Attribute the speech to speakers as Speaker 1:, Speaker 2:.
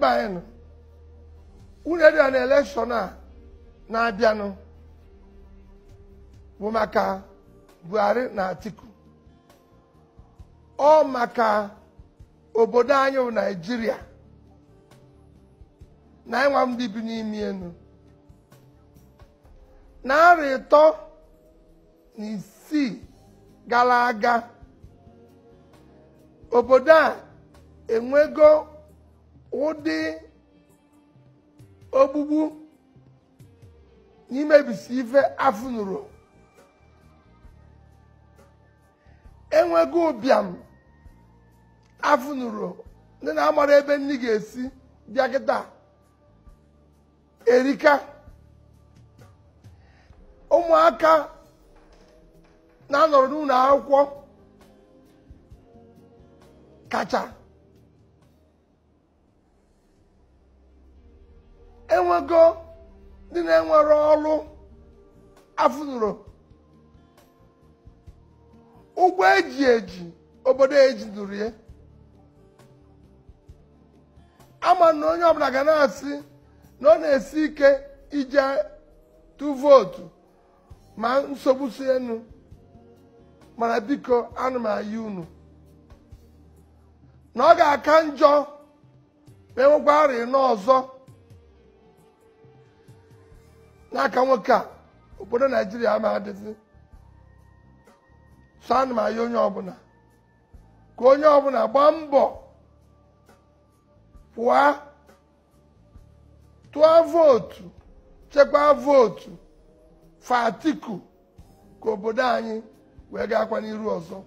Speaker 1: ebe anyị nọ unu dị na elekshọn a na-abịanụ bụ maka Buhari na Atiku ọ maka obodo anyị wụ Naịjirịa na ịnwa ndị bi n'ime enu narị ịtọ na isii gara aga obodo a enwego ụdị ogbugbu n'imebisi ife afụnụrụ enweghị ụbịam afụnụrụ ndị na-amara ebe nri ga-esi bịa kịta erika ụmụaka na-anọrọ n'ụlọ akwụkwọ kacha enwego ndị na-enwere ọrụ afụnụrụ ụgwọ eji eji obodo eji durie ya ama na onye ọbụla ga na-asị na ọ na-esi ike ije tụ vootu ma nsogbu si enu mana biko anụ m unu na ọ ga-aka njọ ma enwekwa arịa n'ọzọ n'aka nwoke a obodo naijiria ama adịzi sọ ana m onye ọbụla ka onye ọbụla gbaa mbọ pụọ tụọ vootu chekwaa vootu fatiku ka obodo anyị wee gaakwa n'iru ọzọ